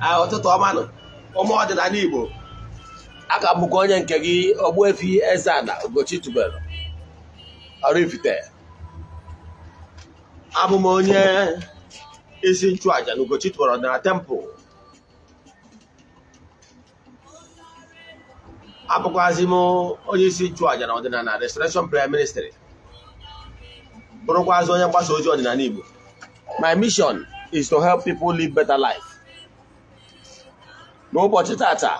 Ah, ụtụtụ ọma ụmụ ọdịnala Igbo a bụkwa onye nke gị Ogbuefi Eze-Ana Ugochi tubelu Oraifite abụ m onye isi nchụaja na Ugochi tubelu ọdịnala tempụl abụkwazị m onye isi nchụaja na ọdịnala Restoration Prayer Ministry bụrụkwazị onye mgbasa ozi ọdịnala Igbo my mission is to help people live better life. n'ụbọchị tata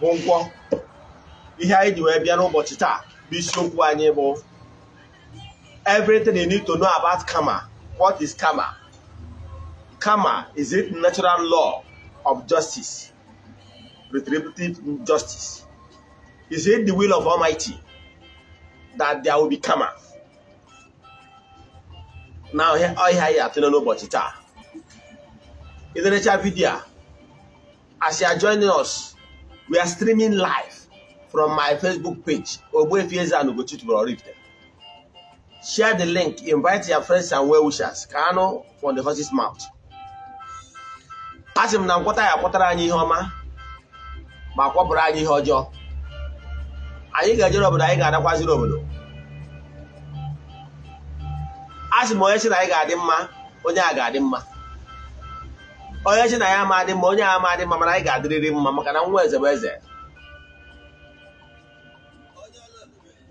bụ nkwọ ihe anyị ji wee bịa n'ụbọchị taa bụ isiokwu anyị bụ everything you need to know about karma what is karma karma is it natural law of justice retributive justice is it the will of Almighty that there will be karma na ọhịa anyị atụle n'ụbọchị taa ịdịrịcha vidiyo a as you are joining us we are streaming live from my facebook page Ogbuefi Eze-Ana share the link invite your friends and well-wishers ka anụ from the horse's mouth a sị m na nkwọta ya kpọtara anyị ihe ọma ma kpọpụrụ anyị ihe ọjọọ anyị ga-ejere obodo anyị ga-adakwaziri obodo a sị m onye sị na anyị ga-adị mma onye a ga-adị mma onye chi na ya ma onye ama ma mana anyị ga-adịrịrị mma maka na nwa eze bụ eze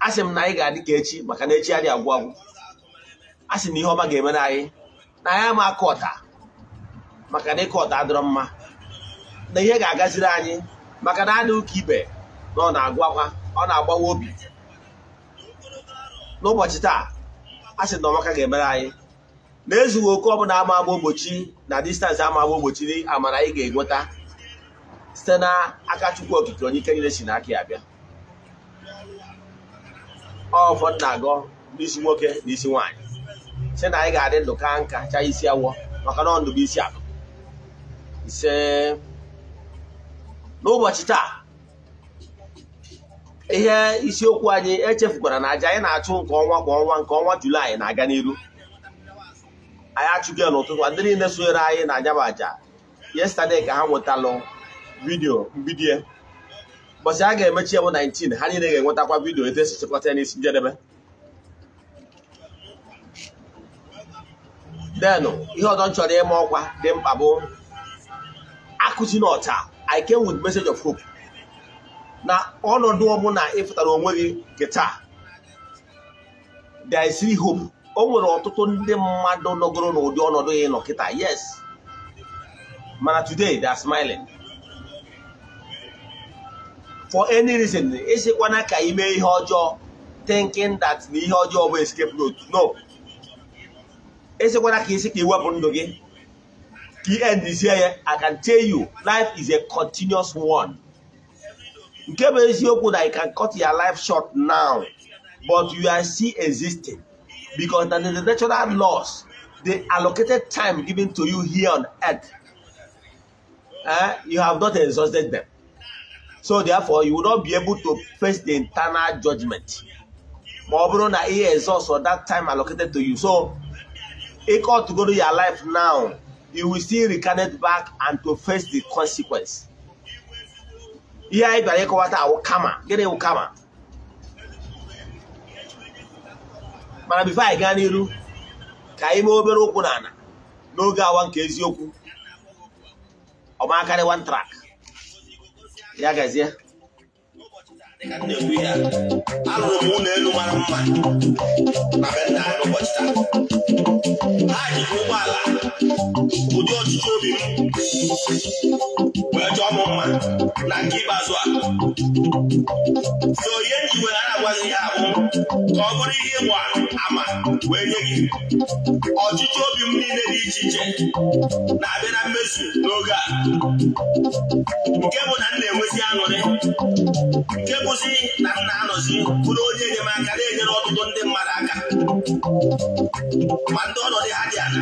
asị m na anyị ga-adị ka echi maka na echi adị agwụ agwụ asị na ihe ọma ga-emere anyị na anyị ama akụ ọta maka na ịkụ ọta adịrọ mma na ihe ga-agaziri anyị maka na adị ụka ibe na ọ na-agwakwa ọ na-agbawa obi n'ụbọchị taa asị na ọmaka ga-emere anyị na-ezughị oke ọbụla ama agba ụbọchị na distansị ama agba ogbochi amara anyị ga-enweta site n'aka Chukwu Okike onye ike niile si n'aka ya bịa ọfọ na-agọ n'isi nwoke na isi nwaanyị si na anyị ga-adị ndụ ka nka chaa isi awọ maka na ọ ndụ bụ isi akụ ise n'ụbọchị taa ihe isiokwu anyị echefukwara na aja anyị na-achụ nke ọnwa kwa ọnwa nke ọnwa Julaị na-aga n'iru anyị achụgo n'ụtụtụ ndị niile sonyere anyị na anyaba aja yesterday ka ha nwetalụ vidio mbido ụbọchị a ga-emechi ya bụ 19 ha niile ga-enwetakwa vidio etu esi chịkọta ya n'isi njedebe den ihe ọzọ m chọrọ ịma ọkwa dị mkpa bụ akụchi na ọcha I came with message of hope na ọnọdụ ọbụla ịfụtara onwe gị nke taa there is hope o nwere ọtụtụ ndị mmadụ nọgoro n'ụdị ọnọdụ ya nọ kịta yes mana today they are smiling for any reason ịsịkwana ka ime mee ihe ọjọọ thinking that na ihe ọjọọ bụ escape route no ịsịkwana ka isi ka iwepụ ndụ gị ka ya i can tell you life is a continuous one nke bụ eziokwu na you can cut your life short now but you are still existing because that is the natural laws the allocated time given to you here on earth eh, you have not exhausted them so therefore you will not be able to face the internal judgment ma ọ bụrụ na ihe exhaust for that time allocated to you so ịkọtụ go to your life now you will still recarnate back and to face the consequence ihe anyị bịara ịkọwata awụ kama gịnị wụ kama mana bifo anyị gaa n'iru ka anyị mee obere ụkwụ n'ala n'oge awa nke eziokwu ọmakarị one track ya gazie alụrụ ụdị ọchịchị obi m wee chọọ m mma na nke ikpeazụ a so ihe nji were na-agwazi ya abụ ka ọ bụrụ ihe ịgba ama wee nye gị ọchịchị obi m niile dị iche iche na-abịa na mmezu n'oge a nke bụ na m na-enwezi aṅụrị nke bụzi na m na-anọzi bụrụ onye enyemaka na-enyere ọtụtụ ndị mmadụ aka ma ndị ọnọdụ ha dị ala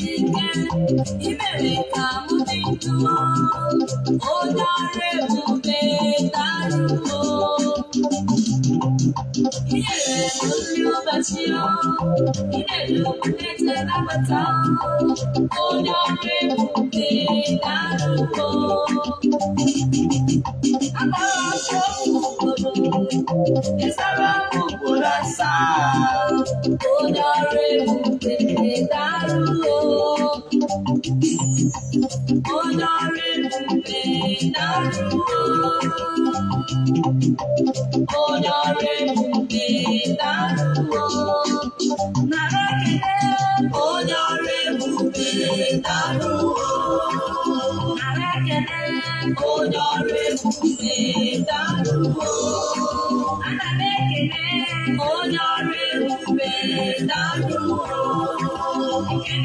ìbẹ̀rẹ̀ ká mú ti dúró ó dáre mú pé dárúgbó. Ìyẹ̀rẹ̀ lórí ọba tí ó ìdẹ̀lú ẹ̀jẹ̀ lápáta ó dáre mú pé dárúgbó. Àbára ṣọ́ọ̀bù gbòòrò ìsára gbogbo lásà ó dáre mú pé dárúgbó. olórí mi dárúwó olórí mi dárúwó nàrẹ́kẹ̀dẹ́ olórí mi dárúwó nàrẹ́kẹ̀dẹ́ olórí mi dárúwó ànàmẹ́kẹ̀dẹ́ olórí mi dárúwó.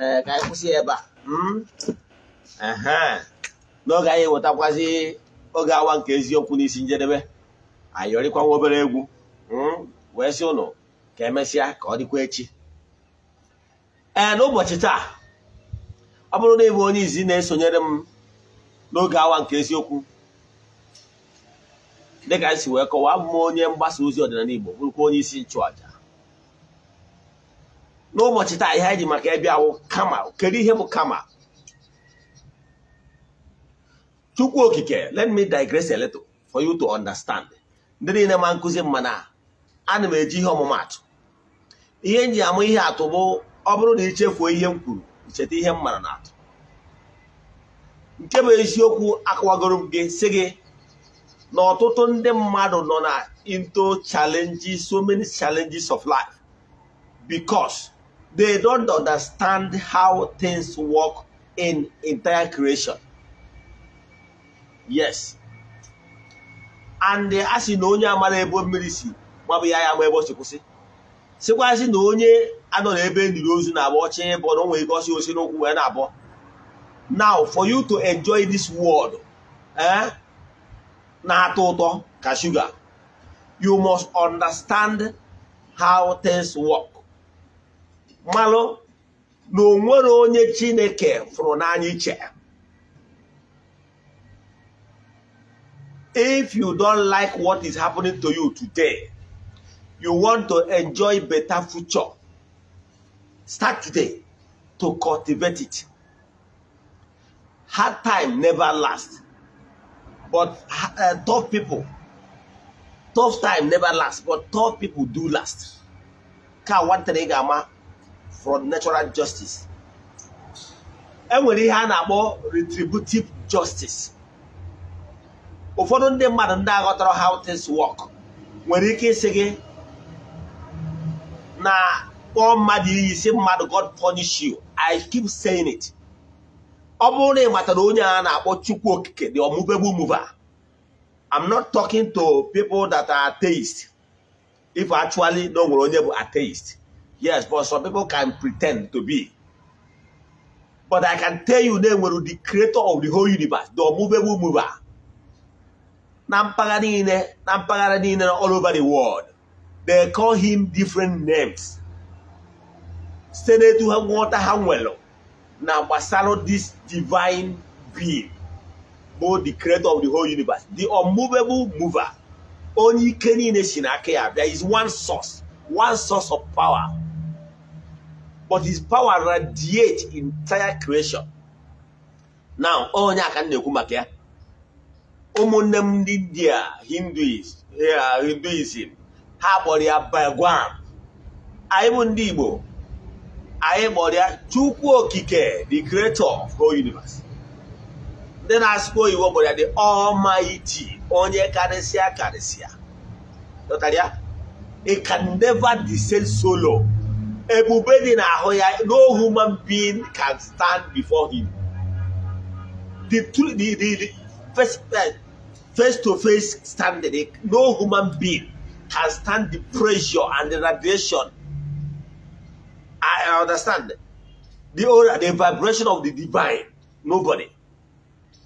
ee ka anyị kwụsị ebe a hmm? n'oge anyị wetakwazi oge awa nke eziokwu n'isi njedebe anyị ọrịkwa obere egwu hmm? wee sị ụnụ ka emesịa ka ọ dịkwa echi ee n'ụbọchị taa ọ bụrụ na ịbụ onye izi na-esonyere m n'oge awa nke eziokwu dịka anyị si wee kọwaa m onye mgbasa ozi ọdịnala Igbo bụrụkwa onye isi nchụàja n'ụbọchị taa ihe anyị ji maka ebe awụ kama kedu ihe bụ kama chukwu okike let me digress a little for you to understand ndị niile ma nkụzi mma na ana m eji ihe ọmụmatụ ihe nji amụ ihe atụ bụ ọ bụrụ na ichefuo ihe m kwuru icheta ihe m mara na atụ nke bụ eziokwu akọwagoro m gị si gị na ọtụtụ ndị mmadụ nọ na into challenges so many challenges of life because they don't understand how things work in entire creation. Yes. And a sị na onye amala ebo mmiri si maọbụ ya ya ma ebe si kwụsị na onye anọ n'ebe ndiri ozu na-abụ ọchị bọ na o ike ọsị osi n'ụkwụ wee na-abọ now for you to enjoy this world eh, na-atọ ụtọ ka sugar you must understand how things work malụ na onwere onye chineke fụrụ n'anya iche if you don't like what is happening to you today you want to enjoy better future start today to cultivate it hard time never last but uh, tough people tough time never last but tough people do last ka nwantere ị ga-ama from natural justice enwere ihe a na-akpọ retributive justice ụfọdụ ndị mmadụ ndị aghọtara how things work nwere ike ịsị gị na kpọọ mmadụ iyi si mmadụ God punish you I keep saying it ọ bụrụ na ị matara onye a na-akpọ Chukwu Okike the unmovable mover I'm not talking to people that are atheist if actually na o nwere onye bụ atheist Yes, but some people can pretend to be. But I can tell you they were the creator of the whole universe, the movable mover. Nam mpaghara niile, na all over the world. They call him different names. Site n'etu ha nghọta ha nwere this divine being both the creator of the whole universe, the unmovable mover. only ike niile si n'aka one source, one source of power. but his power radiates entire creation now onye aka na-ekwu maka ya ụmụnne m ndị india hinduism ha kpọrọ ya Bhagwan anyị bụ ndị igbo anyị kpọrọ ya chukwu okike the creator of whole universe ndị na-asụkwa oyibo kpọrọ ya the almighty onye karịsịa karịsịa dọtara ya it can never descend solo. ebube dị n'ahụ ya no human being can stand before him the true the the first face to face standing no human being can stand the pressure and the radiation I understand the order the vibration of the divine nobody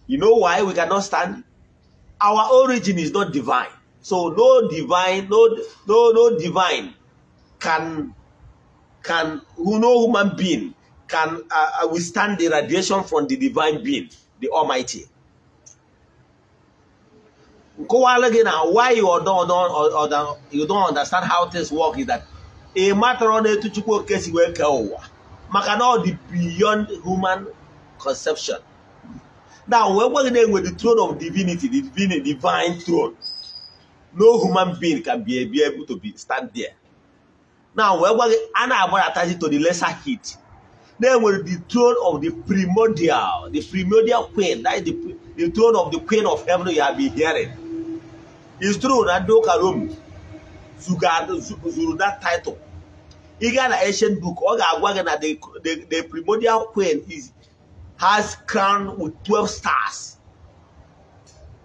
you know why we cannot stand our origin is not divine so no divine no no no divine can can who no human being can uh, uh, withstand the radiation from the divine being the almighty nkọwala gị na why you don't, you don't understand how things work is that ị matter na-etu chukwu oke si wee kee ụwa maka na ọ dị beyond human conception na wee gwa gị na-enwe the throne of divinity the divine throne no human being can be able to be stand there na wee gwa gị a na-agbadata to the lesser heat na-enwere the throne of the primordial the primordial queen that is the, the throne of the queen of heaven you have been hearing is true na ndị ụka rom zuru that title ị gaa na ancient book ọ ga-agwa gị na the, the, the primordial queen is, has crown with 12 stars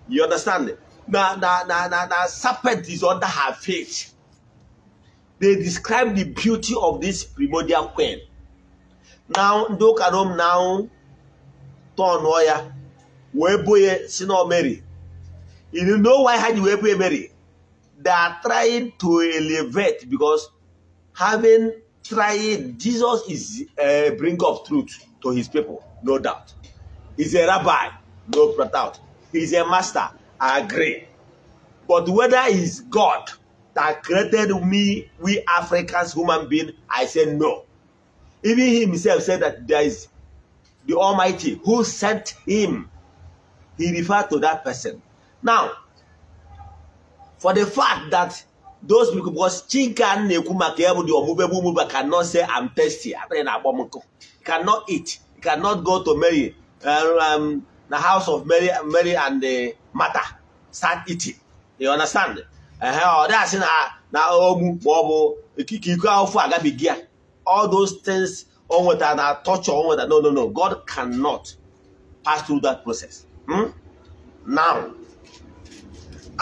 you understand na na na na serpent is under her feet they describe the beauty of this primordial queen. Now, ndị now tọnụọ ya Mary. You know why ha ji Mary? They are trying to elevate because having tried, Jesus is a eh, bringer of truth to his people, no doubt. He's a rabbi, no doubt. He's a master, I agree. But whether he's God that created me, we Africans, human being, I said no. Even himself said that there is the Almighty who sent him. He referred to that person. Now, for the fact that those people, because Chinka Nekumake, di Omubebe Muba cannot say, I'm thirsty, cannot eat, cannot go to Mary, uh, um, the house of Mary, Mary and uh, the mother, start eating. You understand? ehe ọ dasị na na ogbu ma ọ bụ ikike iko ahụfụ agabighị ya all those things o nwetara na torture o nwetara no no no God cannot pass through that process hmm? now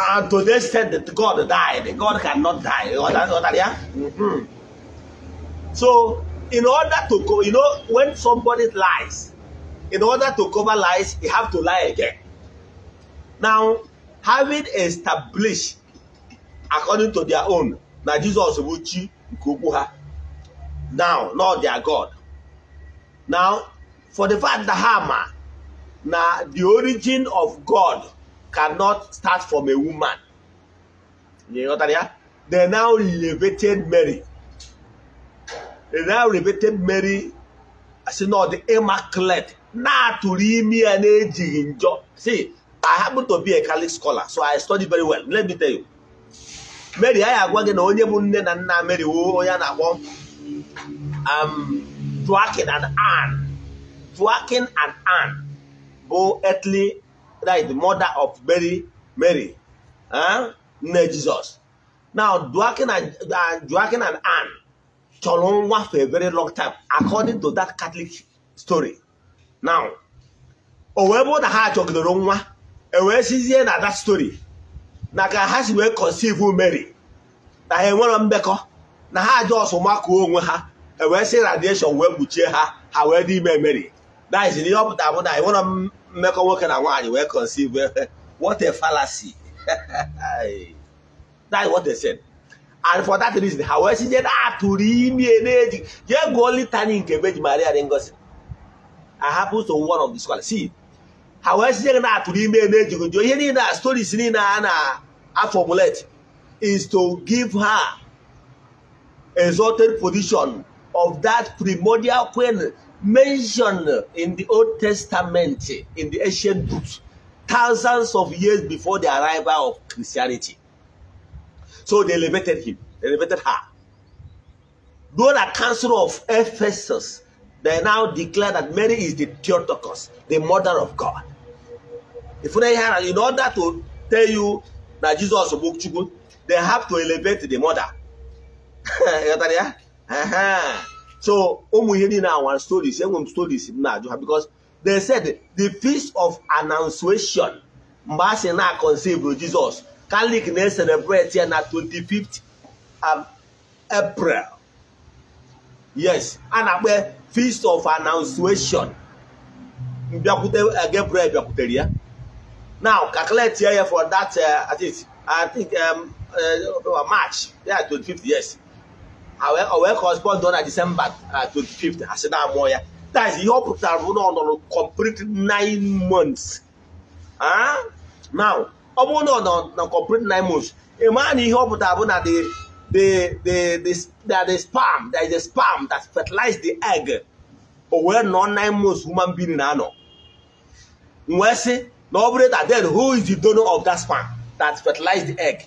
and to the extent that God died God cannot die ya mm ya. so in order to go you know when somebody lies in order to cover lies you have to lie again now having established according to their own na Jizọs bụ chi nke ukwu ha now not their God now for the fact that hama na the origin of God cannot start from a woman ịghọtara ya they now elevated Mary they now elevated Mary si na ọ immaculate na-atụrụ imi ya na-ejighị njọ see I happen to be a Catholic scholar so I study very well let me tell you mary anyị agwa gị na onye bụ nne na nna mary woo onye a na-akpọ um, Joaquin and Anne Joaquin and Anne bụ earthly right mother of mary mary nne jizọs na Joaquin and uh, Joaquin chọrọ nwa for a very long time according to that Catholic story now o wee bụ na ha achọgidoro nwa e wee sizie na that story na ka ha si wee conceive Mary na ha enwere mbekọ na ha ajọ aja ọsụmakụọ onwe ha ewee sị radiation wee kpuchie ha ha wee dị ime Mary na izi na ihe ọ pụtara bụ na enwere mmekọ nwoke na nwaanyị wee conceive what a fallacy that is what they said and for that reason ha wee si nye na atụrụ ime na-eji jee gụọ litany nke beji Maria dị ngozi ahapụ so one of the scholars see ha wee si nye na atụrụ ime na-ejighị jụọ ihe niile a stories niile a na I formulate is to give her exalted position of that primordial queen mentioned in the Old Testament, in the ancient books, thousands of years before the arrival of Christianity. So they elevated him, they elevated her. Though the Council of Ephesus, they now declare that Mary is the Theotokos, the mother of God. If not have, in order to tell you na Jizọs bụ Chukwu they have to elevate the mother ya so ụmụ ihe niile awa stories enwe m stories m na-ajụ ha because they said the feast of annunciation mgbe a sị na conceive Jizọs Catholic na-eselebrate ya na 25th um, April yes a na-akpọ feast of annunciation mbịakwute uh, Gabriel bịakwutere ya now calculate here for that uh, at least I think um, uh, uh March yeah 25th yes I will correspond on December uh, 25th I said that ah, more yeah that is your proposal on complete nine months huh now ọ bụrụ na na complete nine months ịmaa na ihe ọ pụtara na the the the the that the sperm that is the sperm that fertilized the egg o wee nọ nine months human being na anọ Nwesị. na ọ bụrụ that then who is the donor of that sperm that fertilized the egg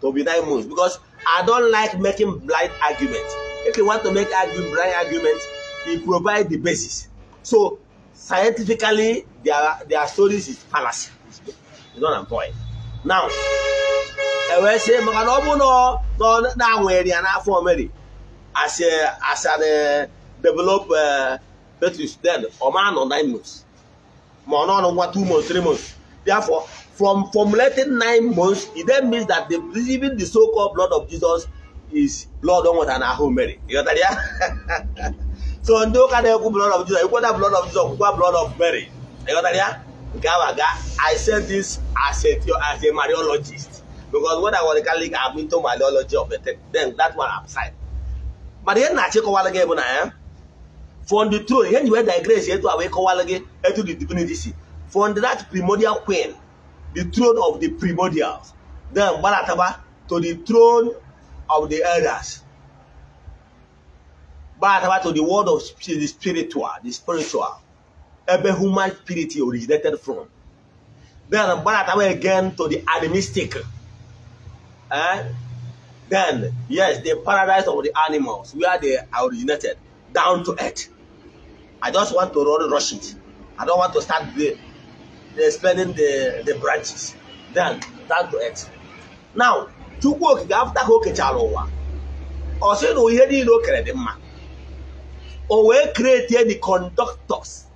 to be nine months because I don like making blind argument if you want to make argument blind arguments you provide the basis so scientifically their their stories is fallacy you know what point now e wee sị maka na ọ bụrụ na na-anwere ya n'afọ Mary as a as a develop fetus eh, then ọ ma nọ nine months ma ọ nọrọ nwa two months three months therefore from formulating nine months it then means that the receiving the so-called blood of Jesus is blood ọ nwetara n'ahụ Mary ịghọtara ya so ndị ụka na-ekwu blood of Jesus ekweda blood of Jesus kwukwa blood of Mary ịghọtara ya nke ahụ aga I said this as a as a Mariologist because when I was a Catholic I'm into Mariology of the thing then that one aside mana ihe na-achịkọwala gị bụ na ya eh? from the throne ihe nyi wee digress etu a wee kọwara gị etu the divinity si from that primordial queen the throne of the primordials then Balataba to the throne of the elders Balataba to the world of the spiritual the spiritual ebe human spirit originated from then Balataba again to the animistic eh? then yes the paradise of the animals where they originated down to earth I just want to rush it. I don't want to start the, the the, the branches. Then that do it. Now, Chukwu Okike after ka o kechara ụwa ọ sị na ihe niile o kere dị mma o wee kretie the conductors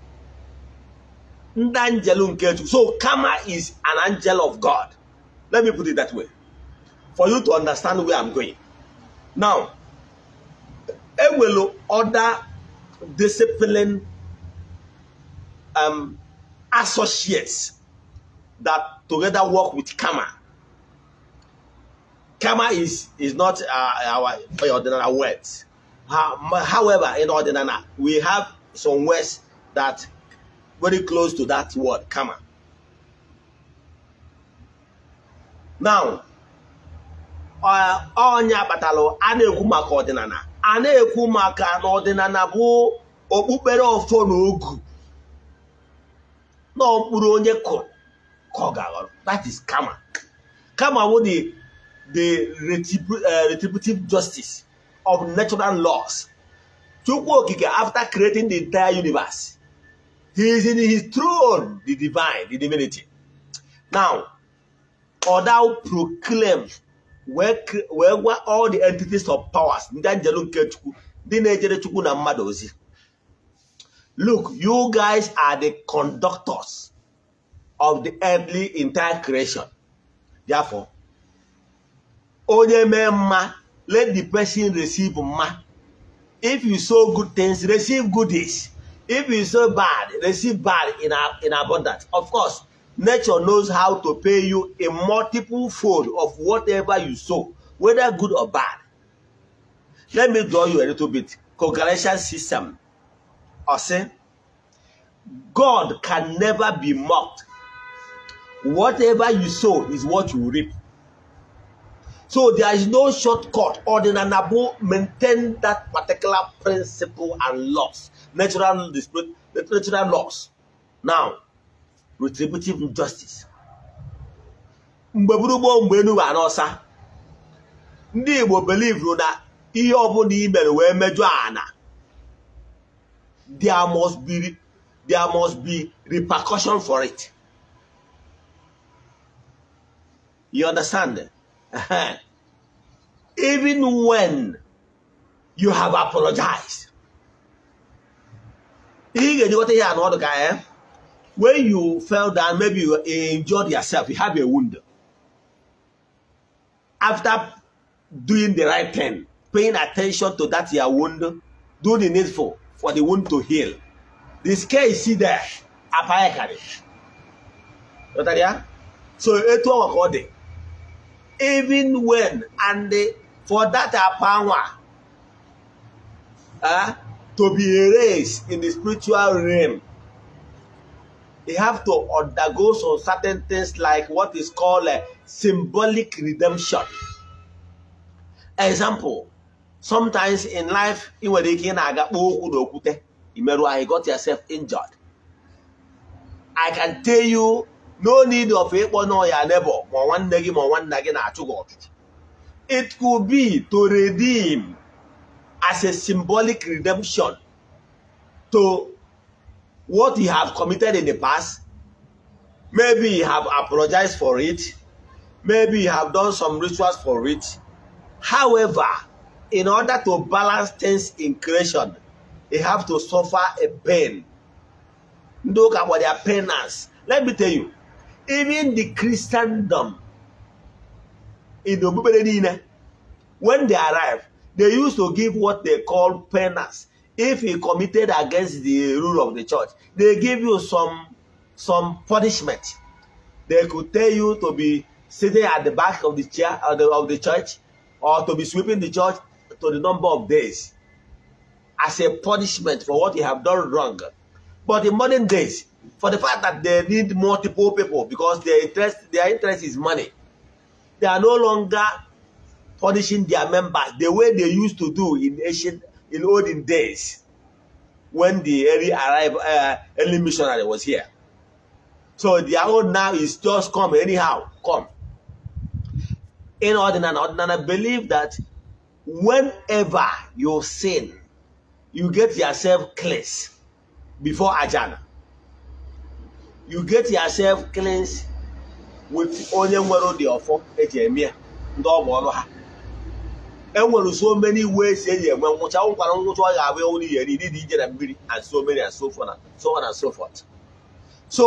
ndị angel nke Chukwu so Kama is an angel of God let me put it that way for you to understand where I'm going now enwelu other discipline um, associates that together work with Kama. Kama is, is not uh, our ordinary words. However, in ordinary, we have some words that very close to that word, Kama. Now, ọnya uh, a na-ekwu maka na bụ okpukpere ọfọ na ogu mkpụrụ onye kụrụ ka ọ ga-aghọrọ that is kama kama wo the the eh, retributive justice of natural laws chukwu okike after creating the entire universe he is in his throne the divine the divinity now or where, gwa all the entities of powers look you guys are the conductors of the earthly entire creation therefore onye let the person receive ma if you sow good things receive goodies if you sow bad receive bad in, in abundance of course nature knows how to pay you a multiple fold of whatever you sow, whether good or bad. Let me draw you a little bit. Congregation system. I say, God can never be mocked. Whatever you sow is what you reap. So there is no shortcut or the nanabu maintain that particular principle and laws, natural dispute, natural laws. Now, retributive justice mgbe gburugburu mgbe enu arụsa n'ọsa ndị Igbo belivuru na ihe ọbụla i mere wee mejọ ana there must be there must be repercussion for it you understand even when you have apologized ihe ị ga-ejikọta ihe anụ ọdụ ka ya eh? when you fell down, maybe you injured yourself, you have a wound. After doing the right thing, paying attention to that your wound, do the needful for the wound to heal. The scare is see there, apparently. You know so it was Even when, and for that power uh, ah, to be erased in the spiritual realm, they have to undergo some certain things like what is called a eh, symbolic redemption. Example, sometimes in life, you were ike i you got yourself injured. I can tell you no need of ịkpọ na ọya neighbor ma nwanne One ma one gị na-achụ gị It could be to redeem as a symbolic redemption to what he have committed in the past. Maybe he have apologized for it. Maybe he have done some rituals for it. However, in order to balance things in creation, he have to suffer a pain. Look at what their penance. Let me tell you, even the Christendom in the eh? when they arrive, they used to give what they call penance. if he committed against the rule of the church, they give you some some punishment. They could tell you to be sitting at the back of the chair of uh, the, of the church or to be sweeping the church to the number of days as a punishment for what you have done wrong. But in modern days, for the fact that they need multiple people because their interest, their interest is money, they are no longer punishing their members the way they used to do in ancient in olden days when the early arrive uh, early missionary was here. So their own now is just come anyhow, come. In ordinary, ordinary believe that whenever you sin, you get yourself cleansed before Ajana. You get yourself cleansed with onye nwere ụdị ọfọ eji eme ndị ọrụ ha enwere so many ways eji enwe ngwụcha nwụkwara ngwụcha ọ ga-abụ ewu n'ihe niile dị ije na mmiri and so many and so so on and so forth so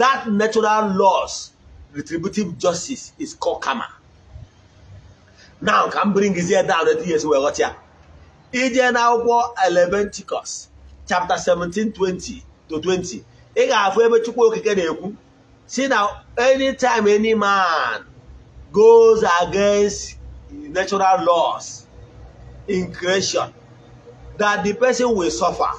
that natural laws retributive justice is called kama now ka m bringizie down etu ihe wee ghọta ije na akwụkwọ Leviticus chapter 17 20 to 20 ị ga-afụ ebe Chukwu Okike na-ekwu si na anytime any man goes against natural laws in creation that the person will suffer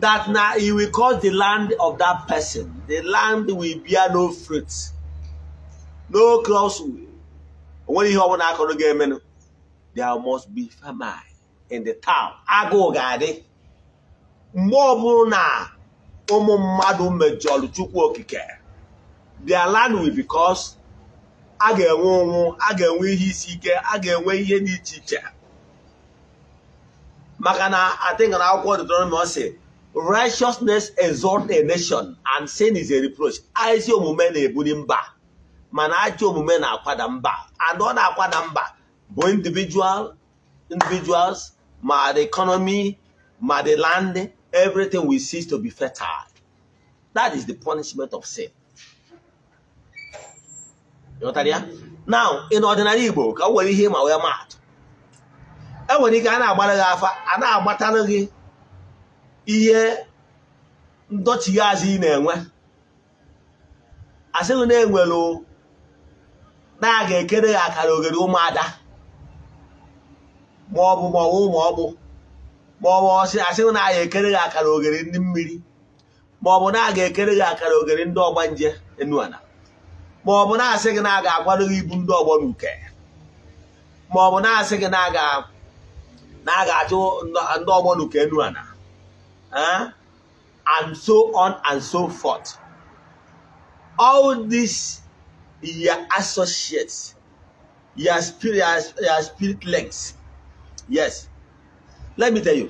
that na he will cause the land of that person the land will bear no fruit no crops onwere ihe ọbụla akụrụ ga-eme no there must be famine in the town agụụ ga-adị mgbe na ụmụ mmadụ mejọrọ Chukwu Okike their land will be caused a ga-enwe ụnwụ a ga-enwe ihe isi ike a ga-enwe ihe dị iche iche maka na adịghị akwụkwọ Deuteronomy ọ sị righteousness a nation and sin is a reproach ezi omume na-ebuli mba mana ajọ omume na-akwada mba and ọ na-akwada mba bụ individual individuals ma the economy ma the land everything will cease to be fertile that is the punishment of sin ghọtara ya na igbo ka nwere ihe ma wee maatụ e ike a na-agbara gị afa a na-agbatalụ gị ihe ndọchighi azụ ị na-enwe asịrị na-enwelụ na a ga-ekere gị akara oghere ụmụada maọbụ maọbụ maọbụ maọbụ asịghị na a ekere gị akara oghere ndị mmiri maọbụ na aga ekere gị akara oghere ndị ọgbanje enuala ma ọ bụ na-asị gị na a ga gị ibu ndị ọgbọ n'uke ma ọ bụ na-asị gị na a ga-achụ ndị ọgbọ n'uke enu ana eh? and so on and so forth all these your associates your spirit your spirit legs yes let me tell you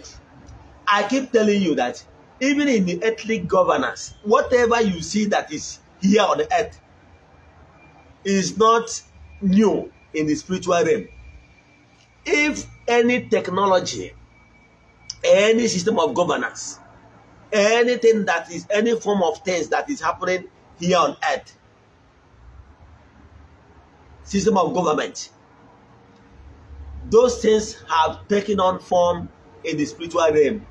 i keep telling you that even in the ethnic governance whatever you see that is here on the earth is not new in the spiritual realm. If any technology, any system of governance, anything that is any form of things that is happening here on earth, system of government, those things have taken on form in the spiritual realm.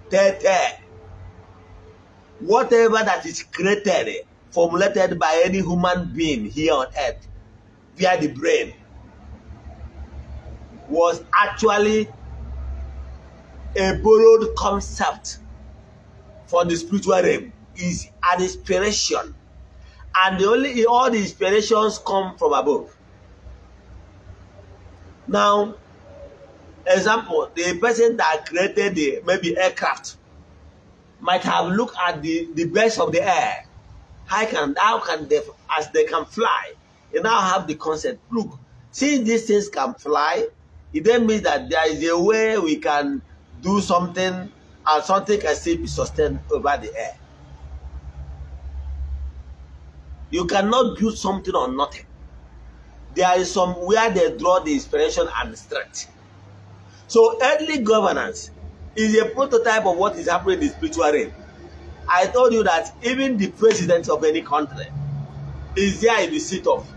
Whatever that is created, formulated by any human being here on earth via the brain was actually a borrowed concept for the spiritual realm is an inspiration and the only all the inspirations come from above now example the person that created the maybe aircraft might have looked at the the best of the air how can how can they as they can fly you now have the concept. Look, since these things can fly, it then means that there is a way we can do something and something can still be sustained over the air. You cannot build something on nothing. There is some where they draw the inspiration and strength. So earthly governance is a prototype of what is happening in the spiritual realm. I told you that even the president of any country is there in the seat of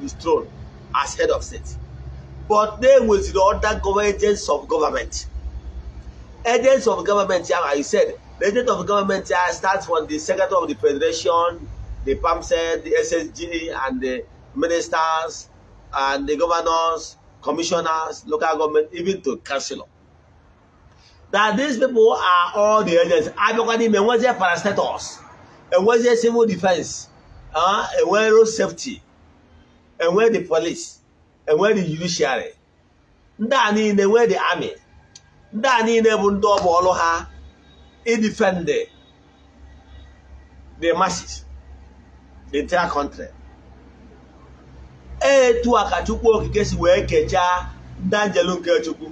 his throne as head of state but na the other government agents of government agents of government ahụ i said the agent of government ahụ starts from the secretary of the federation the PAMSED, the SSG and the ministers and the governors commissioners local government even to councillor that these people are all the agents abịakwa n'ime enwezie parastatus enwezie civil defense uh, enwe road safety enwe the police enwe the judiciary ndị a niile enwe the army ndị a niile bụ ndị ọbụ ọlụ ha idefend e the masses the entire country e etu a ka chukwu okike si wee kechaa ndị anjelu nke chukwu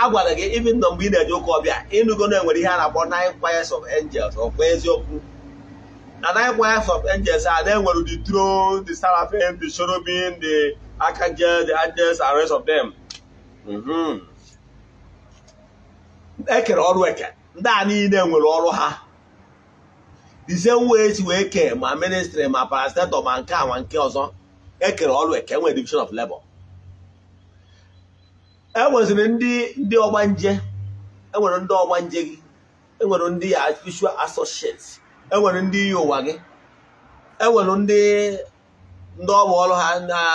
a gwara gị ibi ndụ mgbe ị na-eje ụka ọbịa ịnụgo na enwere ihe a na-akpọ nine choirs of angels ọkwa eziokwu na nine wives of angels are there were the throne, the seraphim, the cherubim, the archangel, the angels, and rest of them. E kere ọrụ eke ndị a niile nwere ọrụ ha the same way si wee kee ma ministry ma parastator ma nke a ma nke ọzọ ekere ọrụ eke nwere division of labor e nweziri ndị ndị ọgbanje enwere ndị ọgbanje gị enwere ndị ya spiritual enwere ndị iyi ụwa gị enwere ndị ndị ọgbọ ọrụ ha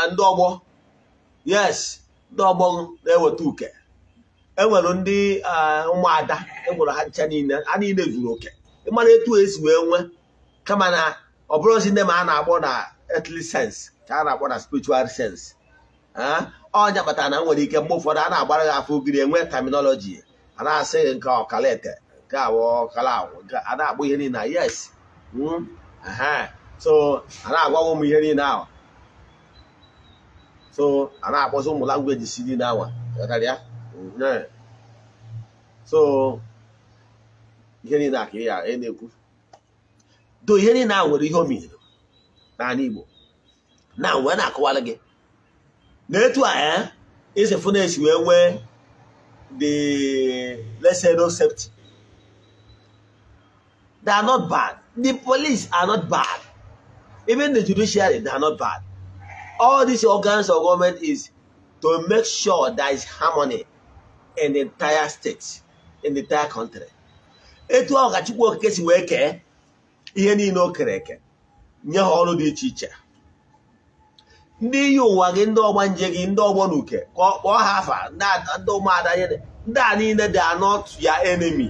ndị ọgbọ yes ndị ọgbọ na-eweta uke enwere ndị ụmụada enwere ha ncha niile a niile zuru oke ịmara etu esi wee nwee kama na ọ bụrụzi ndị ma a na-akpọ na earthly sense ka a na-akpọ na spiritual sense ọnya kpatara na nwere ike mgbe ụfọdụ a na-agbara gị afọ ogiri enwe terminology a na-asị gị nke ọkalete nke awọ ọkala a na-akpọ ihe niile yes hmm? so a na-agwawa ụmụ ihe niile ahụ so a na-akpọzi ụmụ langweji si niile awa ya so ihe niile ka ya na-ekwu do ihe niile ahụ nwere ihe o na n'ala Igbo na wee na-akọwara gị na etu a ya eh, isi wee nwee the let's no safety They are not bad. The police are not bad. Even the judiciary, they are not bad. All these organs of government is to make sure there is harmony in the entire state, in the entire country. etu ọkachukwu Chukwu Okike si wee kee ihe niile o kere eke nye ha ọrụ dị iche iche ndị iyi ụwa gị ndị nje gị ndị ọgbọ na uke ka kpọọ ha afa ndị ụmụada ndị a niile dị anọ ya enemi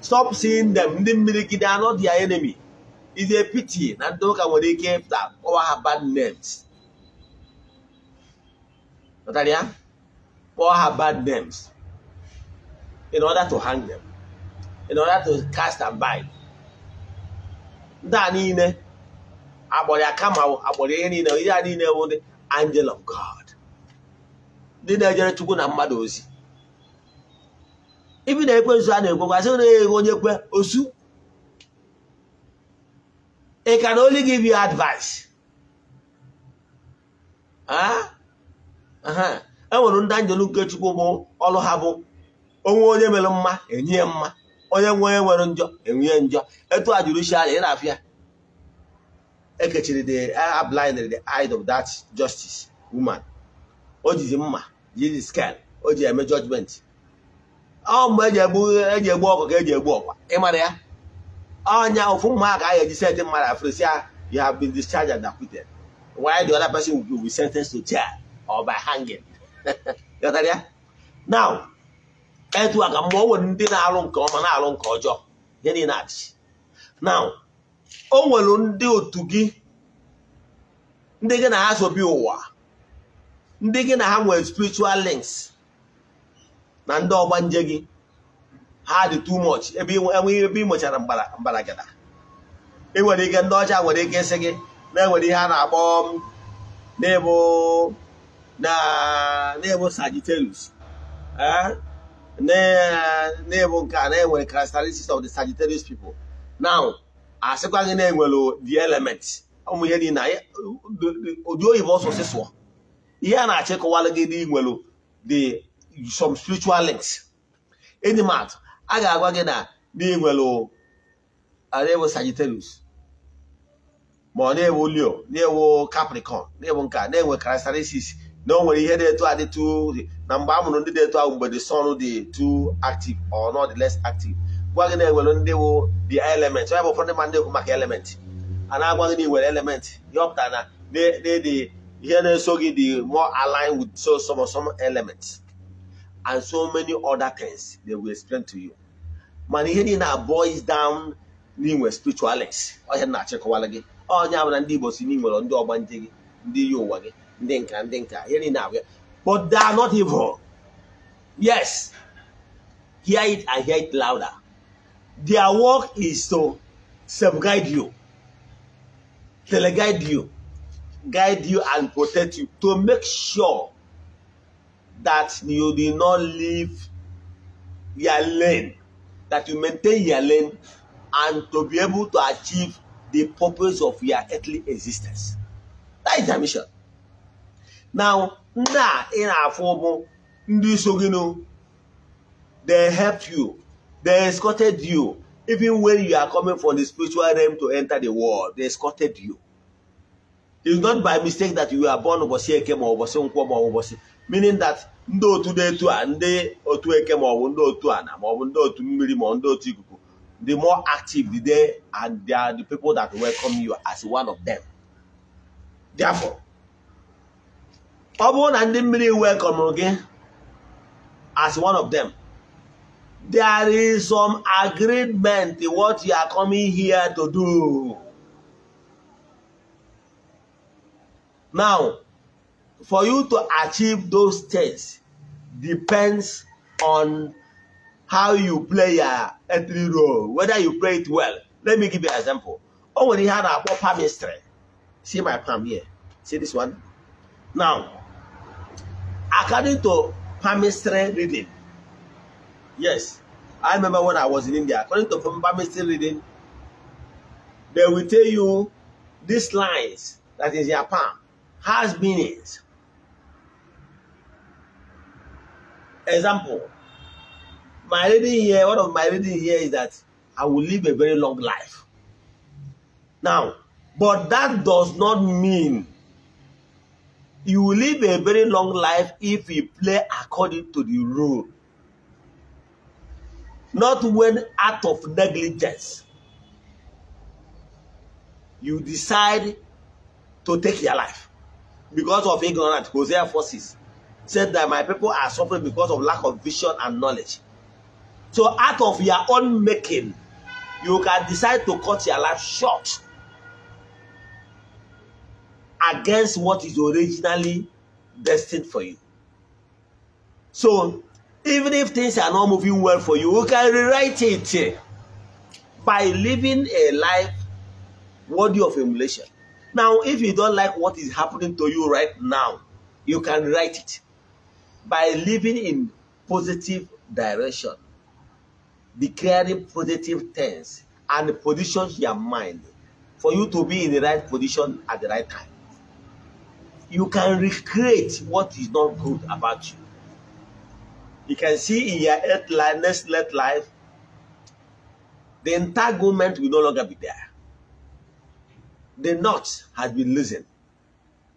stop seeing them ndị mmirigide anọ dị enemy is a pity na ndị ụka nwere ike ịpụta kpọwa ha bad names nọtara ya kpọọ ha bad names in order to hang them in order to cast and bind ndị a niile akpọrọ ya kama akpọrọ ihe niile ihe a niile bụ ndị angel of God ndị na-ejere Chukwu na mmadụ ozi ibi na ekwe ekwensu a na-ekwekwasị na ego onye kwe osu ị ka na give you advice ah? enwere ndị anjelu nke chukwu bụ ọrụ ha bụ onwe onye mere mma enye mma onye nwe onye nwere njọ enwe njọ etu a jụrụ isi anya ị na-afịa ekechiri the eye blinded the eye of that justice woman o jizi mma jizi scan o ji eme judgment ọ mgbe eji egbu eji egbu ọkụ ka eji egbu ọkwa ịmara ya ọnya ofu mma ka a ga-eji sentị mmadụ afrịsị ya you have been discharged and acquitted while the other person will be sentenced to chair, or by hanging ghọtara ya now etu a ka mgbe o nwere ndị na-alụ nke ọma na-alụ nke ọjọọ ihe niile adịghị now o nwere ndị otu gị ndị gị na ha sobi ụwa ndị gị na ha nwere spiritual links na ndị ọgbanje nje gị ha dị too much ebe enweghị ebe ị ị e nwere ike ndị ọcha nwere ike ịsị gị na enwere ihe a na-akpọ um, na-ebu Sagittarius eh? na nke a na-enwere of the Sagittarius people now asịkwa gị na-enwere the element ụmụ ihe eh, ihe a na-achịkọwalụ gị dị nwere the some spiritual links enyi m atụ a ga-agwa gị na na na-ewu Sagittarius ma ọ na-ewu Leo na-ewu Capricorn na-ewu nka na-enwe characteristics na o nwere ihe na-eto adịtụ na mgbe a ndị na-eto ahụ mgbe the sun dị tu active or not less active gwa gị na-enwere ndị wụ the element ọ bụ ụfọdụ ma ndị ekwu maka element a na-agwa gị na iwere element ihe na ihe na-eso gị dị more aligned with so some some elements and so many other things they will explain to you Man, ihe niile na boils down n'inwe spiritual lens ọhịa na-achịkọwala gị onye abụla ndị Igbo si n'inwere ndị ọgbanje gị ndị yi ụwa gị ndị nka ndị nka ihe niile abụya but they are not evil yes hear it and hear it louder their work is to safeguard you teleguide you guide you and protect you to make sure that you did not leave your lane, that you maintain your lane and to be able to achieve the purpose of your earthly existence. That is their mission. Now, now in our form, they helped you, they escorted you, even when you are coming from the spiritual realm to enter the world, they escorted you. It's not by mistake that you are born obosi ekemo Obosi Nkwoma or Obosi, meaning that ndị otu dị etu a ndị otu eke maọbụ ndị otu ana maọbụ ndị otu mmiri maọbụ ndị otu ikuku the more active the day and they are the people that welcome you as one of them therefore ọ bụrụ na ndị mmiri welcome gị as one of them there is some agreement what you are coming here to do now for you to achieve those states depends on how you play your entry role, whether you play it well. Let me give you an example. Oh, when he had a palm history. See my palm here. See this one? Now, according to palmistry reading, yes, I remember when I was in India, according to palmistry reading, they will tell you these lines that is your palm has meanings. Example, my reading here, one of my reading here is that I will live a very long life. Now, but that does not mean you will live a very long life if you play according to the rule. Not when out of negligence you decide to take your life because of ignorance. Hosea 4 6. said that my people are suffering because of lack of vision and knowledge. So out of your own making, you can decide to cut your life short against what is originally destined for you. So even if things are not moving well for you, you can rewrite it by living a life worthy of emulation. Now, if you don't like what is happening to you right now, you can write it by living in positive direction, declaring positive things, and position your mind for you to be in the right position at the right time. You can recreate what is not good about you. You can see in your next life, the entanglement will no longer be there. The knot has been loosened,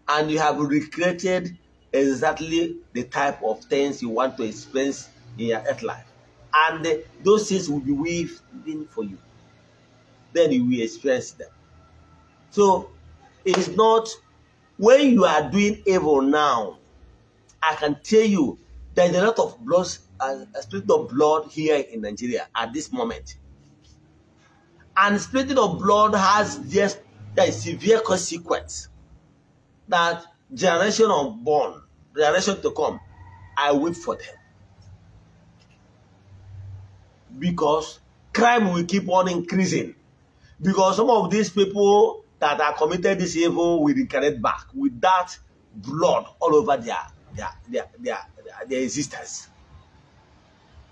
and you have recreated exactly the type of things you want to experience in your earth life. And those things will be waiting for you. Then you will experience them. So it is not when you are doing evil now, I can tell you there is a lot of blood, a spirit of blood here in Nigeria at this moment. And spirit of blood has just a severe consequence that generation of born, generation to come, I wait for them. Because crime will keep on increasing. Because some of these people that are committed this evil will reconnect back with that blood all over their, their, their, their, their existence.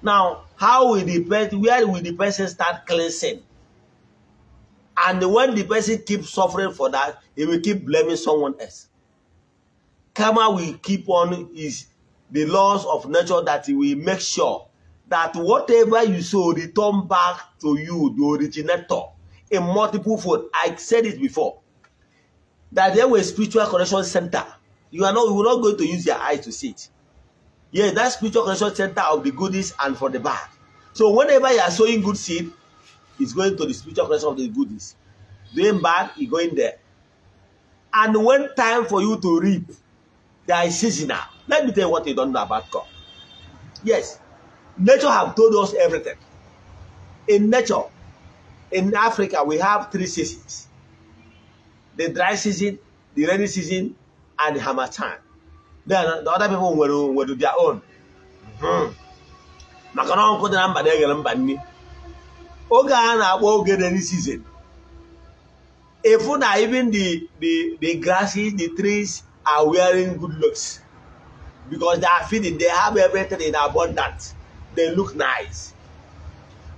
Now, how will the person, where will the person start cleansing? And when the person keeps suffering for that, he will keep blaming someone else. Karma will keep on is the laws of nature that will make sure that whatever you sow return back to you, the originator, in multiple fold. I said it before. That there were spiritual connection center. You are not, you are not going to use your eyes to see it. Yeah, that spiritual connection center of the goodies and for the bad. So whenever you are sowing good seed, it's going to the spiritual connection of the goodies. Doing bad, you go in there. And when time for you to reap, They are seasonal. Let me tell you what you don't know about God. Yes, nature have told us everything. In nature, in Africa, we have three seasons. The dry season, the rainy season, and the hammer time. Then the other people will, will do their own. Hmm. Maka na ọkụ dị na mba na-eghere mba nni Oge a na-akpọ oge rainy season. efu na even the, the, the grasses, the trees, are wearing good looks because they are feeding, they have everything in abundance, they look nice.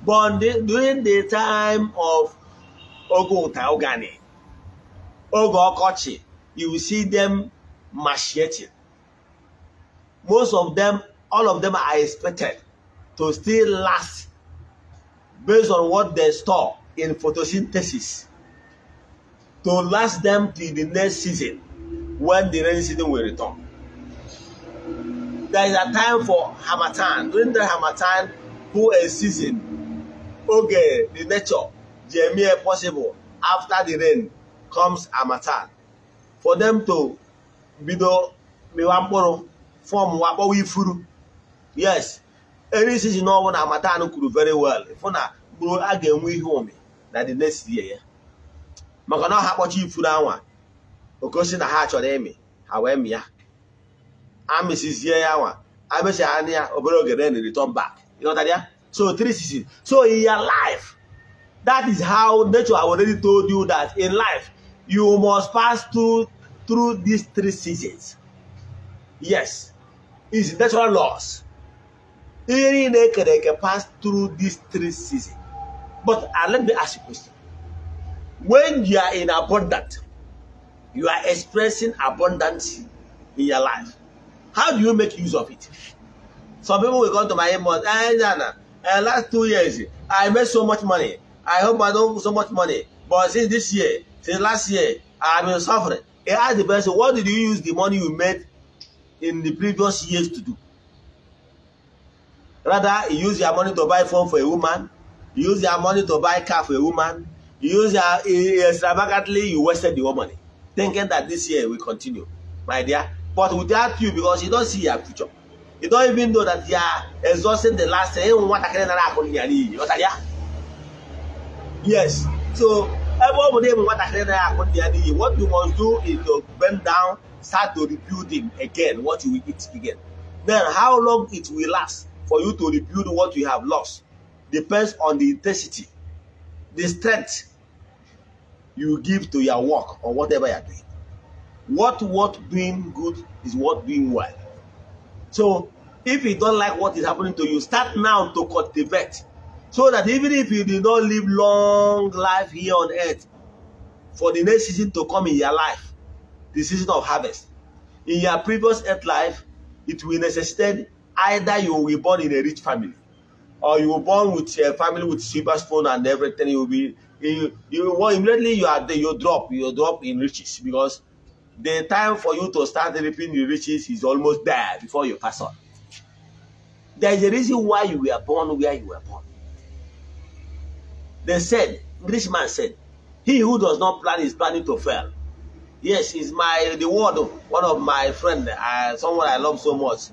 But during the time of Ogo Taogani, Ogo Okochi, you will see them macheting. Most of them, all of them are expected to still last based on what they store in photosynthesis to last them till the next season. when the rain season will return. There is a time for Hamatan. During the Hamatan, who a season, oge the nature, the mere possible, after the rain comes Hamatan. For them to bido mewa mkpụrụ fọm wakpọwa ifuru yes any season ọbụla Hamatan kwuru very well ifu na mkpụrụ a ga-enwe ihe ụmị na the next year ya maka na ha kpọchaa ifuru anwa okosi na ha chọrọ ịmị ha wee mịa amịsizie ya nwa amịsị ha na ya obere oge then return back ịghọtara ya so three seasons so in life that is how nature have already told you that in life you must pass through through these three seasons yes it's natural laws ihe niile ekere eke pass through these three seasons but uh, let me ask you a question when you are in abundance you are expressing abundance in your life. How do you make use of it? Some people will come to my inbox, and ah, Jana, uh, eh, last two years, I made so much money. I hope I don't so much money. But since this year, since last year, I've been suffering. he asked the person, what did you use the money you made in the previous years to do? Rather, you use your money to buy phone for a woman, you use your money to buy car for a woman, you use your eh, extravagantly, you wasted your money. thinking that this year will continue, my dear. But without you, because you don't see your future, you don't even know that you are exhausting the last year. Yes. So everybody what you must do is to bend down, start to rebuild him again what you will eat again. Then how long it will last for you to rebuild what you have lost depends on the intensity, the strength you give to your work or whatever you're doing. What what doing good is what doing well. So if you don't like what is happening to you, start now to cultivate. So that even if you did not live long life here on earth, for the next season to come in your life, the season of harvest, in your previous earth life, it will necessitate either you will be born in a rich family, or you will born with a family with silver spoon and everything, you will be you, you well, immediately you are you drop, you drop in riches because the time for you to start reaping the riches is almost there before you pass on. There is a reason why you were born where you were born. They said, rich man said, he who does not plan is planning to fail. Yes, is my the word of one of my friend, uh, someone I love so much.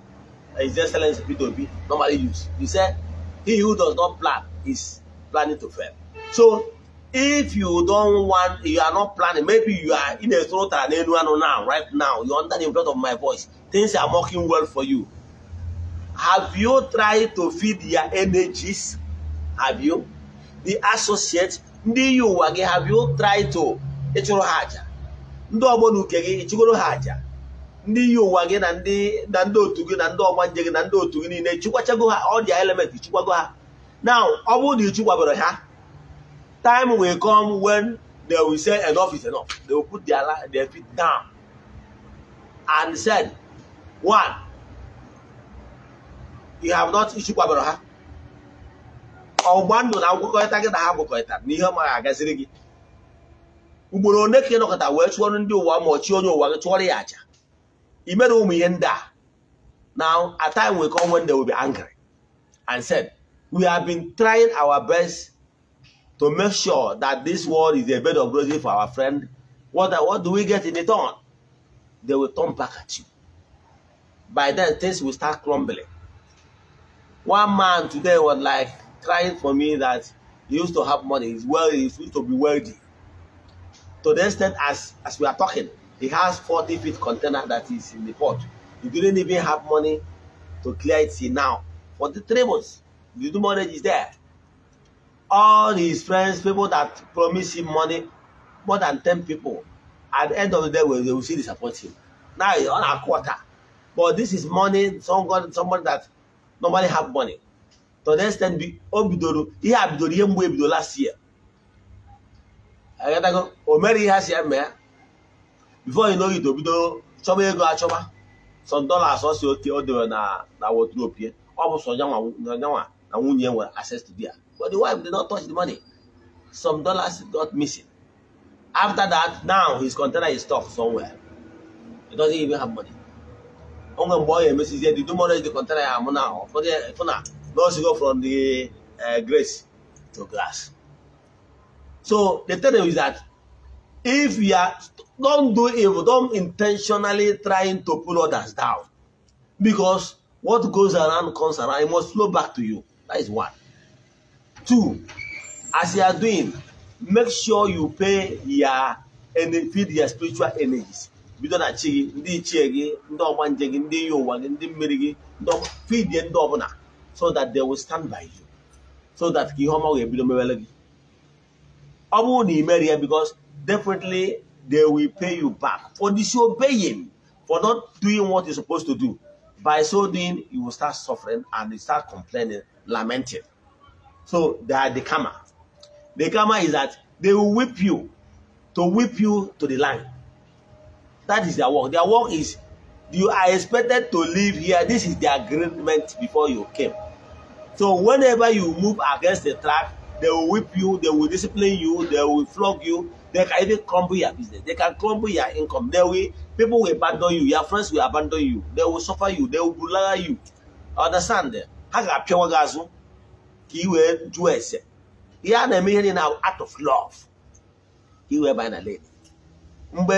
His Excellency P2P normally use. He said, he who does not plan is planning to fail. So if you don't want you are not planning maybe you are in a throat and anu now right now are under the influence of my voice things are working well for you have you tried to feed your energies have you the associate ndị yi ụwa gị have you tried to ịchụrụ ha aja ndị ọgbọ na uke gị ịchụgoro ha aja ndị yi ụwa gị na ndị na ndị otu gị na ndị ọgba nje gị na ndị otu gị niile chụkwachago ha ọrịa element chụkwago ha now ọ bụrụ na ịchụkwabere ha time will come when they will say enough is enough. They will put their, their feet down and said, one, you have not issued kwabara ha. Ọgba na agwụkọta gị na ha agwụkọta na ihe ma agaziri gị. Ugboro one ka ị nọkọta wee chụọrọ ndị ụwa ma ọchị onye ụwa gị chụọrọ ya aja. I mere ụmụ ihe ndị a. Now, a time we come when they will be angry and said, we have been trying our best to make sure that this world is a bed of roses for our friend, what, what do we get in return? They will turn back at you. By then, things will start crumbling. One man today was like crying for me that he used to have money, he's well, he used to be wealthy. To the extent as, as we are talking, he has 40 feet container that is in the port. He didn't even have money to clear it See now. For the three months, the money is there. all his friends, people that promise him money, more than 10 people, at the end of the day, they will see support him. Now he's on a quarter. But this is money, someone, somebody that normally have money. To the extent, Obidoro, he had Bidoro, ihe mwe ebido last year. I gotta go, Omeri has here, man. Before you know it, obido chọba ego achọba. Some dollars also, o dewere na wardrobe ya. Ọ bụ sọ nyanwa na nwunye nwere access to there but the wife did not touch the money some dollars got missing after that now his container is stuck somewhere he doesn't even have money onwe mgbe ọ ga-emesizie the tomorrow is the container ya amụ na ụfọdụ fụna na o sigo from the eh, grace to glass so the thing is that if you are don't do evil don't intentionally trying to pull others down because what goes around comes around it must flow back to you That is one. Two, as you are doing, make sure you pay your and feed your spiritual energies. bido na chi gị ndị ichie gị ndị ndi gị ndị iyi ụwa gị ndị mmiri gị fidie ndị ọbụla so that they will stand by you so that ka ihe ọma ga-ebido mewere gị ọ bụrụ na imeri ya because definitely they will pay you back for disobeying for not doing what you supposed to do by so doing you will start suffering and you start complaining lamenting. So they are the karma. The karma is that they will whip you to whip you to the line. That is their work. Their work is you are expected to live here. This is the agreement before you came. So whenever you move against the track, they will whip you, they will discipline you, they will flog you, they can even crumble your business, they can crumble your income. They will people will abandon you, your friends will abandon you, they will suffer you, they will bully you. Understand them? ha ga-apịawa gị azụ ka ị wee jụọ ese ihe a na-eme ihe niile na out of love ka ị wee na lane mgbe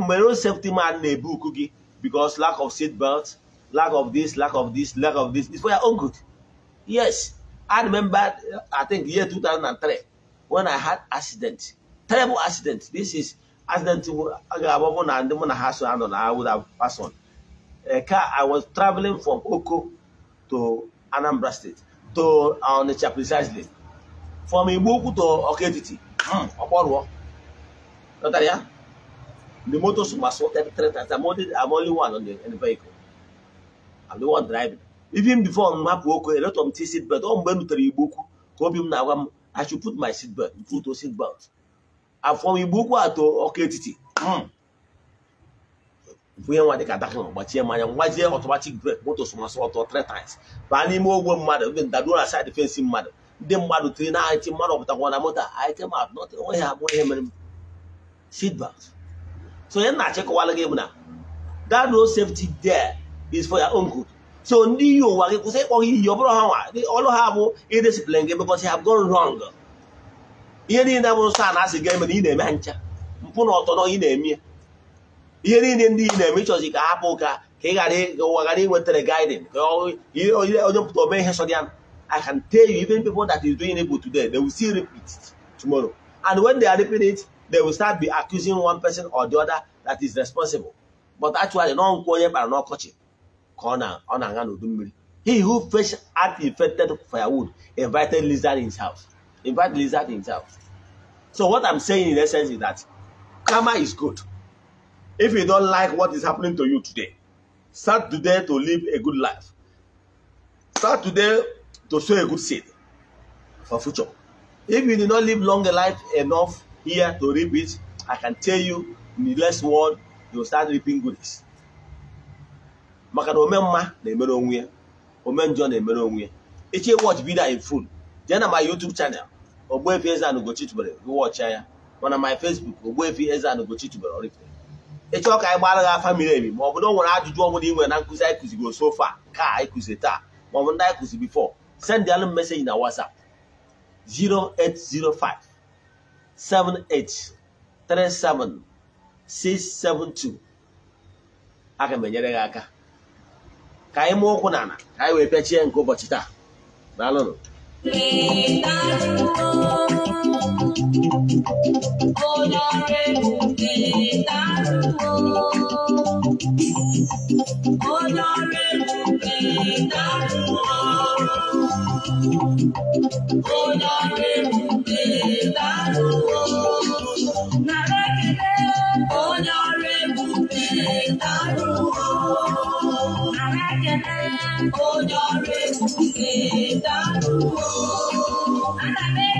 mgbe road safety man na-ebu uku gị because lack of seat belt lack of this lack of this lack of this is for your own good yes i remember i think year 2003 when i had accident terrible accident this is accident ga-abụ na ndị mụ na ha so anọ na would have on car i was traveling from oko to Anambra State to uh, Onitsha precisely from Igboukwu to Ọka Etiti hmm, ọkpọrụọ nọtara ya the motors were sorted three times I'm only, I'm only one on the, in the vehicle I'm the one driving even before m hapụ oke eletọ m ti seat ọ mgbe n'utere rutere Igboukwu ka obi m na-agwa m I should put my seat belt put to seat belt from Igboukwu a to Ọka Etiti hmm, e nwa dịka adahụ gbachie mmanya ngwazie ọtụmatik brek moto sọmasọ ọtọ three times baa n'ime ogwe mmadụ ebe ndaruo na said fensi mmadụ ndị mmadụ tiri na ahịtị mmadụ ọpụtakwa na moto ahịtị ha nọtị ihe mere seatbelt so ihe na-achịkọwala gị bụ na that road safety there is for your own good so ndị iyi ụwa gị kwụsị ịkpọ ha iyi ọ bụrụ ha nwa ọlụ ha bụ idisiplin gị because ha have gone ihe niile bụrụ sa na-asị gị emere ị na-eme ha ncha mpụ na na-eme ihe niile ndị i na-eme ịchọzi ka hapụ ụka ka ị ghara ụwa ghara inwetara gaidin ka onye pụta ome ihe sọdịan I can tell you even people that is doing evil today they will still repeat it tomorrow and when they are repeating it they will start be accusing one person or the other that is responsible but actually nọ nkwụ onye kpara n'ọkọchị ka ọ na-aga n'udu mmiri he who fresh art infected firewood invited lizard in his house invite lizard in his house so what I'm saying in essence is that karma is good If you don't like what is happening to you today, start today to live a good life. Start today to sow a good seed for future. If you did not live long life enough here to reap it, I can tell you in the last world, you'll start reaping goodies. maka na ome mma na-emere onwe ya ome njọ na-emere onwe ya echi watch video in full jee na my YouTube channel Ogbuefi Eze-Ana Ugochi tubelu gị watch ya mana my Facebook Ogbuefi Eze-Ana Ugochi ịchọọ ka anyị gbara gị afa miri emi ma ọ bụ na ọ nwere ajụjụ ọbụla ị nwere na nkụzi anyị kụziri a ka anyị taa ma ọ bụ ndị anyị kụzi bifo send alụ m meseji na WhatsApp 0805 7837672 aga m enyere gị aka ka anyị mụọ ụkwụ n'ala ka anyị wee pịachie nke ụbọchị taa daalụnụ Oh, Oh, your Ana me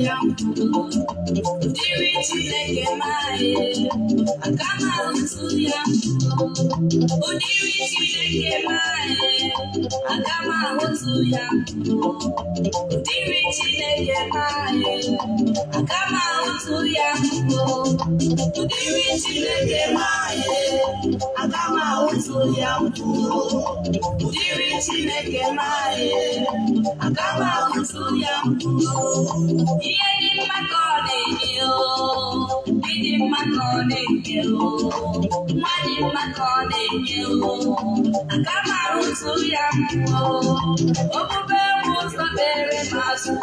mine. I got my own mtu onírìí Chineke maanyị aga m ahụtụ ya onírìí Chineke maanyị aga m ahụtụ ya onírìí Chineke maanyị aga m ahụtụ ya onírìí Chineke maanyị aga m ahụtụ ya ihe dị Money in my calling you. Money in my calling you. I got my own to young. Open bell was the very master.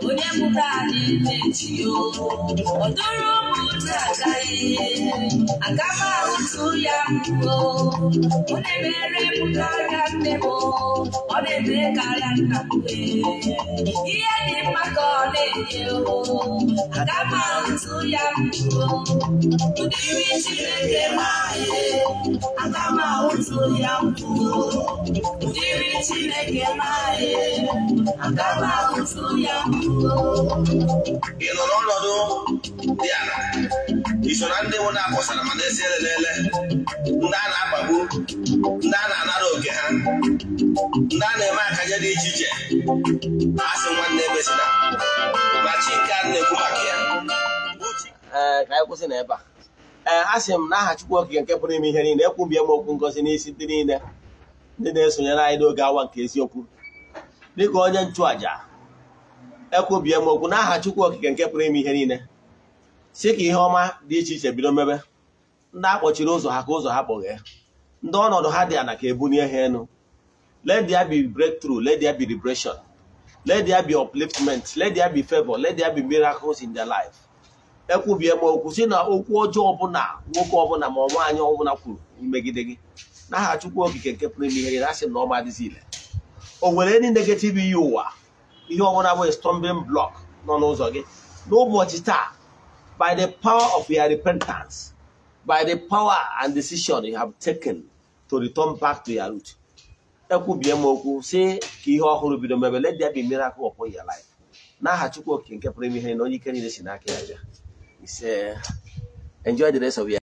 When you put on it, you. Odoro Mutagaye. I got my own to young. When I marry Mutagan, they will. Or they make a land. Here in my calling. ị nọ n'ọnọdụ dị ala iso ndị nwụ na-akwụsara esi elelele ndị a na-akpagbu ndị a na-anara oke ha ndị a na-eme akanye dị iche iche a nwanne ee eh, ka anyị kwụsị a ee eh, a sị m na aha Chukwu Okike nke pụrụ ime ihe niile ekwubie m okwu ngozi n'isi ndị niile ndị na-esonyere anyị n'oge awa nke eziokwu dịka onye nchụàja ekwubie m okwu n'aha Chukwu Okike nke pụrụ ime ihe niile si ka ihe ọma dị iche iche bido mebe ndị akpọchiri ụzọ ha ka ụzọ ha kpọghee ndị ọnọdụ ha dị ana ka ebunie ha elu let there be breakthrough let there be liberation let there be upliftment let there be let there miracles in life ekwubie m okwu si na okwu ọjọọ ọbụla nwoke ọbụla ma ọ nwaanyị ọbụla kwuru megide gị n'aha Chukwu okike nke pụrụ ime ihe gị asị na ọma adịzi ile o nwere ndị negative ihe ụwa ihe ọbụla bụ stumbling block nọ n'ụzọ gị n'ụbọchị taa by the power of your repentance by the power and decision you have taken to return back to your root ekwubie m okwu si ka ihe ọhụrụ bido mebe let bi be miracle upon your life n'aha Chukwu okike nke pụrụ ime ihe na onye ike niile si n'aka ya bịa It's, uh, enjoy the rest of your